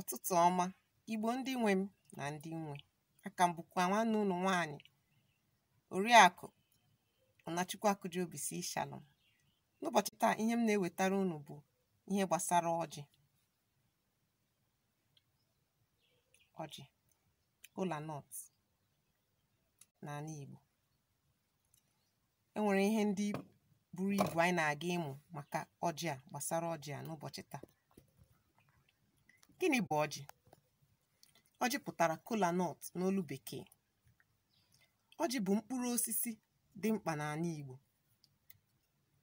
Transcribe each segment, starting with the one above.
Ọtụtụ ọma, Igbo ndị nwe m na ndị nwe. Aka m bụkwa nwanne unu nwaanyị, Oriakụ Ọnachukwu Akujiobisi Shalom. N'ụbọchị taa, ihe m na-ewetara unu bụ ihe gbasara ọjị. Ọjị, na n'ala Igbo. enwere ihe ndị buru ibu anyị na-aga ịmụ maka ọjị a gbasara ọjị a n'ụbọchị taa. Gịnị bụ ọjị? Ọjị pụtara kola nut n'olu Bekee. Ọjị bụ mkpụrụ osisi dị mkpa n'ala Igbo.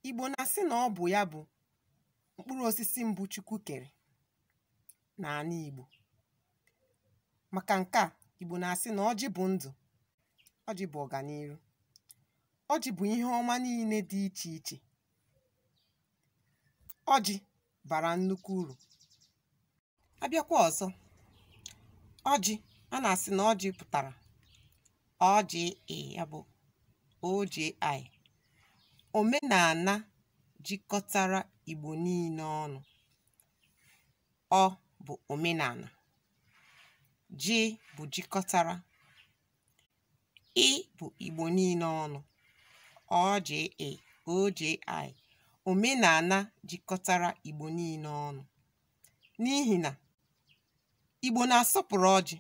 Igbo na-asị na ọ bụ ya bụ mkpụrụ osisi mbụ Chukwu kere n'ala Igbo. Maka nke a, Igbo na-asị na ọjị bụ ndụ, ọjị bụ ọganiru, ọjị bụ ihe ọma niile dị iche iche. Ọjị bara nnukwu uru. abịakwa ọzọ ọjị a na-asị na ọjị pụtara ọjị ya bụ oji omenala jikọtara Igbo niile ọnụ ọ bụ omenala ji bụ jikọtara ị bụ Igbo niile ọnụ ọjị oji omenala jikọtara Igbo niile ọnụ n'ihi na Igbo na-asọpụrụ ọjị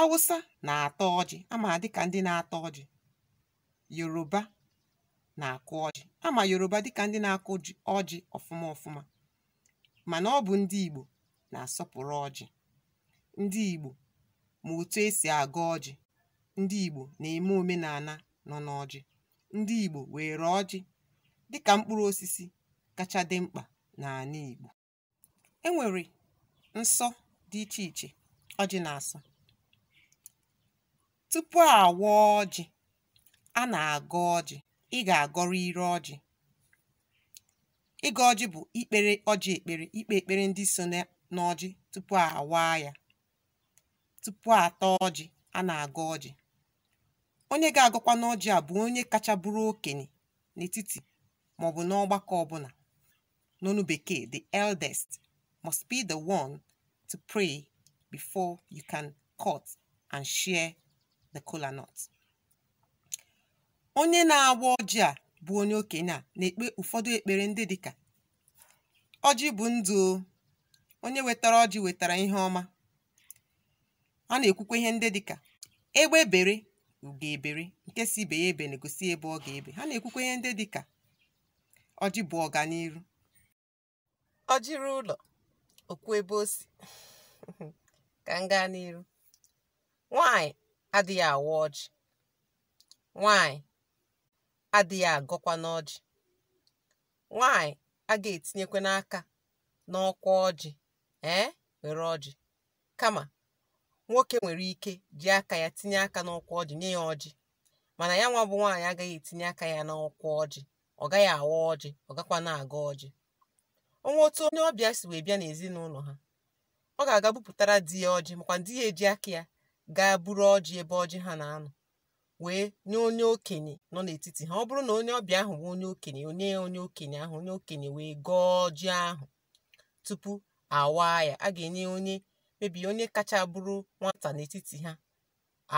Awụsa na atọ ọjị ama dịka ndị na atọ ọjị Yoruba na-akụ ọjị ama Yoruba dịka ndị na-akụ ọjị ọfụma ọfụma mana ọ bụ ndị Igbo na-asọpụrụ ọjị ndị Igbo ma otu esi agụ ọjị ndị Igbo na-eme omenala nọ n'ọjị ndị Igbo were ọjị dịka mkpụrụ osisi kacha dị mkpa n'ala Igbo enwere nsọ dị iche iche ọjị na-asọ tupu awa ọjị a na-agọ ọjị ị ga-agọrọ ire ọjị ịga ọjị bụ ikpere ọjị ekpere ikpe ekpere ndị so n'ọjị tupu awaa ya tupu ata ọjị a na-agọ ọjị onye ga-agọkwa n'ọjị a bụ onye kacha bụrụ okenye n'etiti maọbụ n'ọgbakọ ọbụla n'ọnụ bekee the eldest must be the one to pray before you can cut and share the kola nut. onye na-agba ọjị a bụ onye okenye a na-ekpe ụfọdụ ekpere ndị dịka ọjị bụ ndụ onye wetara ọjị wetara ihe ọma a na-ekwukwa ihe ndị dịka egbe bere ugo ebere nke si ibe ya ebe na-egosi ebe ọ ga-ebe ha na-ekwukwa ihe ndị dịka ọjị bụ ọganiru ọjị ụlọ okwu ebe o si ka m gaa n'iru nwanyị adịghị awa ọjị nwanyị adịghị agọkwa n'ọjị nwanyị a ga-etinyekwa n'aka n'ọkwa ọjị ee were ọjị kama nwoke nwere ike ji aka ya tinye aka n'ọkwa ọjị nye ya ọjị mana ya nwa bụ nwaanyị agaghị etinye aka ya n'ọkwa ọjị ọ gaghị awa ọjị ọ gakwa na-aga ọjị onwe otu onye ọbịa si wee bịa n'ezinụlọ ha ọ ga-aga bupụtara di ya ọjị makwa di ya eji aka ya gaa buru ọjị ebe ọjị ha na-anọ wee nye onye okenye nọ n'etiti ha ọ bụrụ na onye ọbịa ahụ nwe onye okenye onye onye okenye ahụ onye okenye wee gọọ ọjị ahụ tupu awaa ya a ga-enye onye mebi onye kacha bụrụ nwata n'etiti ha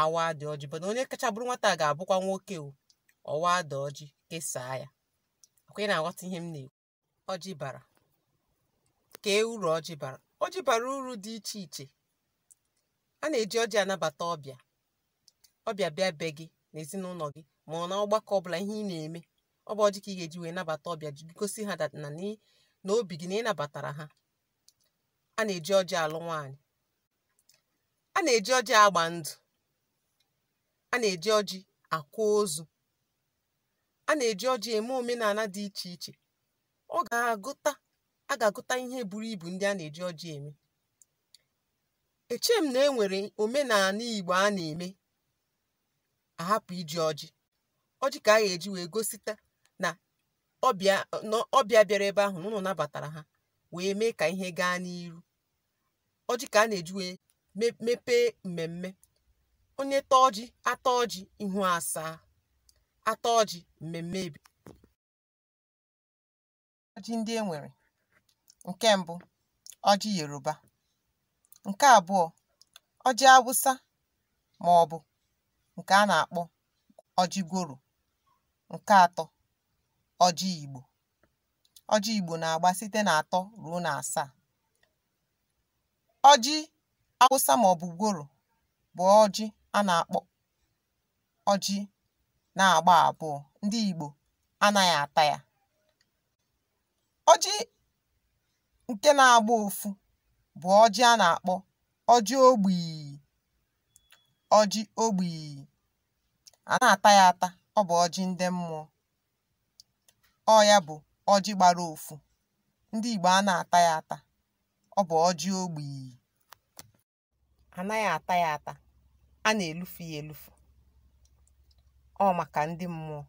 awa dị ọjị mana onye kacha bụrụ nwata ga-abụkwa nwoke o ọwa dị ọjị kesaa ya akwa na-aghọta ihe m na-ekwu ọjị bara kee uru ọjị bara ọjị bara uru dị iche iche a na-eji ọjị anabata ọbịa ọbịa bịa be gị na ezinụlọ gị ma ọ na ọgbakọ ọbụla ihe ị na-eme ọ bụ ọjị ka ị ga-eji wee nabata ọbịa gosi ha na n'obi obi gị na ị nabatara ha a na-eji ọjị alụ nwaanyị a na-eji ọjị agba ndụ a na-eji ọjị akwa ozu a na-eji ọjị eme omenala dị iche iche ọ ga-agụta a ga-agụta ihe buru ibu ndị a na-eji ọjị eme m na e nwere omenala Igbo a na-eme ahapụ iji ọjị ọjị ka a ga-eji wee gosita na ọbịa bịara ebe ahụ ụnụ nabatara ha wee mee ka ihe gaa n'iru Oji ka a na-eji wee mepee mmemme onye tọọ ọjị ata ọjị ihu asaa ata ọjị mmemme ebi ndị e nwere Nke mbụ, ọjị Yoruba. Nke abụọ, ọjị Awụsa bụ nke a na-akpọ ọjị Goro, Nke atọ, ọjị Igbo. Ọjị Igbo na-agba site n'atọ ruo asaa Ọjị Awụsa ma ọ bụ ọjị a na-akpọ ọjị na-agba abụọ. Ndị Igbo anaghị ata ya. Ọjị Nke na-agba ụfụ bụ ọjị a na-akpọ ọjị ogbìì ọjị ogbii a na ata ya ata ọ bụ ọjị ndị mmụọ ọ ya bụ ọjị gbara ụfụ ndị Igbo a na-ata ya ata ọ bụ ọjị ogbìì ànaghị ata ya ata a na-elufu ya elufu, ọ maka ndị mmụọ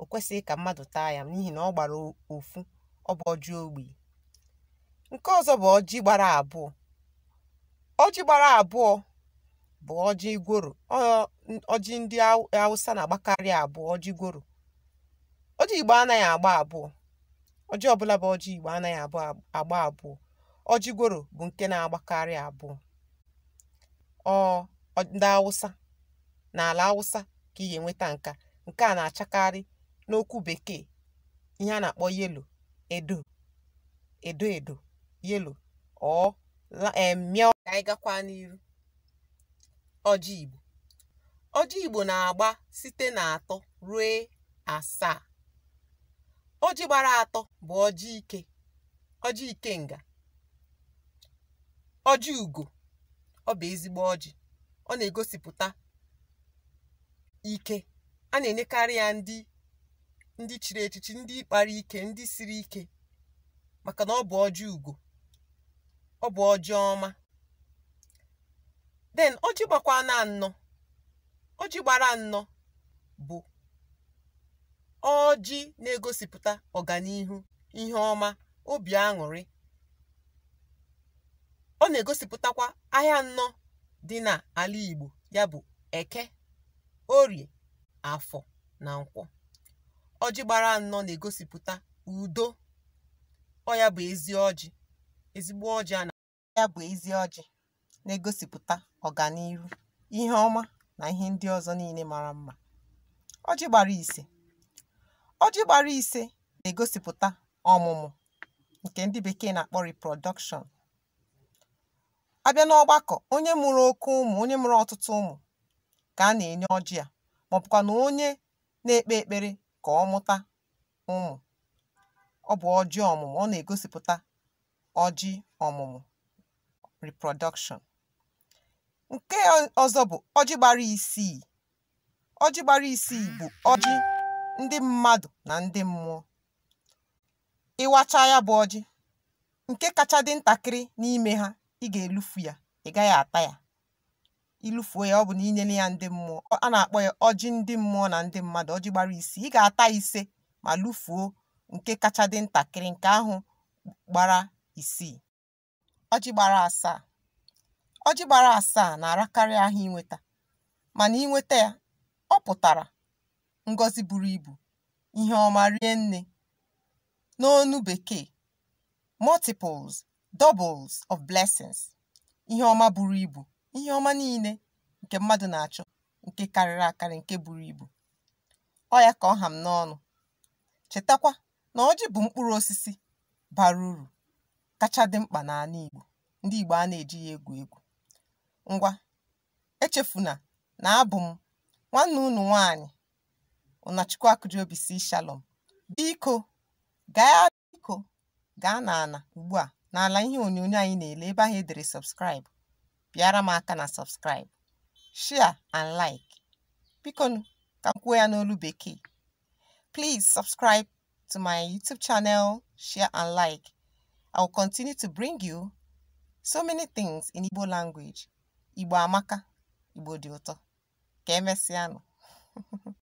o kwesịghị ka mmadụ taa ya n'ihi na ọ gbara ụfụ ọ bụ ọjị Nke ọzọ bụ ọjị gbara abụọ. Ọjị gbara abụọ bụ ọjị igworo. Ọjị ndị Awụsa na-agbakarị abụọ, ọjị igworo. Ọjị Igbo anaghị agba abụọ. Ọjị ọbụla bụ ọjị Igbo anaghị agba abụọ. Ọjị igworo bụ nke na-agbakarị abụọ. Ọ ndị Awụsa n'ala Awụsa ka ị ga-enweta nke a. Nke a na-achakarị n'okwu Bekee ihe a na-akpọ yelo edo, edo edo. yellow or um ka anyị gakwa n'iru ọjị igbo ọjị igbo na-agba site na atọ ruo asaa ọjị gbara atọ bụ ọjị ike ọjị nga. ọjị ugo ọ bụ ezigbo ọjị ọ na-egosipụta ike a na-enyekarị ya ndị ndị chiri echichi ndị kpara ike ndị siri ike maka na ọ bụ ọjị ugo ọ bụ ọjị ọma den ọjị gbakwa na ọjị gbara nnọ bụ ọjị na-egosipụta ọganihu ihe ọma obi aṅụrị ọ na-egosipụtakwa ahịa nnọ dị n'ala Igbo ya bụ Eke Orie Afọ na Nkwọ ọjị gbara nnọọ na-egosipụta udo ọ ya bụ ezi ọjị ezigbo ọjị a na-ya bụ ezi ọjị na-egosipụta ọganihu ihe ọma na ihe ndị ọzọ niile mara mma ọjị gbara ise ọjị gbara ise na-egosipụta ọmụmụ nke ndị bekee na-akpọ riprodọkshọn abịa n'ọgbakọ onye mụrụ oke ụmụ onye mụrụ ọtụtụ ụmụ ka a na-enye ọjị a ma ọbụkwa na onye na-ekpe ekpere ka ọ mụta ụmụ ọ bụ ọjị ọmụmụ ọ na-egosipụta ọjị ọmụmụ (reproduction). Nke ọzọ bụ ọjị gbara isii. Ọjị gbara isii bụ ọjị ndị mmadụ na ndị mmụọ. Ị ya bụ ọjị, nke kacha dị ntakịrị n'ime ha ị ga-elufu ya, ị gaghị ata ya. Ilufuo ya ọ bụ na ya ndị mmụọ, a na-akpọ ya ọjị ndị mmụọ na ndị mmadụ (ọjị gbara isii). Ị ga-ata ise ma lufuo nke kacha dị ntakịrị, nke ahụ gbara isii ọjị gbara asaa ọjị gbara asaa na-arakarị ahịa inweta mana inweta ya ọ pụtara ngọzi buru ibu ihe ọma rie nne n'onu bekee multiples doubles of blessings ihe ọma buru ibu ihe ọma niile nke mmadụ na-achọ nke karịrị akarị nke buru ibu ọ ya ka ọ ha m n'ọnụ chetakwa na ọjị bụ mkpụrụ osisi bara uru kacha dị mkpa n'ala Igbo ndị Igbo a na eji ya egwu egwu. Ngwa echefuna na abụ m nwanne unu nwaanyị Ụnachukwu (C-Shalom). Biko gaa Biko gaa n'ala ugbua n'ala ihe onyonyo anyị na-ele ebe ahụ edere dere bịara m aka na subscribe, share and like. Bikonu ka m kwuo ya n'olu bekee. plis subscribe to my YouTube channel, share and like. I will continue to bring you so many things in Igbo language. Igbo amaka, Igbo dioto, ụtọ.